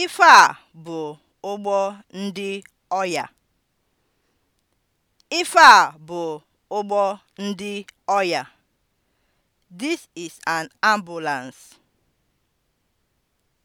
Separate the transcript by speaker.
Speaker 1: Ife a bụ ụgbọ ndị ọya. Ife a bụ ụgbọ ndị ọya. This is an ambulance.